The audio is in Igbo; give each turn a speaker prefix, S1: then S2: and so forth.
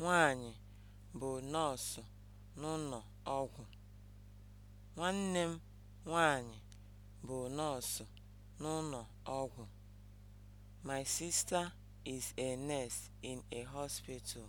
S1: nwanyị bụ nọọsụ n'ụlọ ọgwụ. Nwanne m nwanyị bụ nọọsụ n'ụlọ ọgwụ. My sister is a nurse in a
S2: hospital.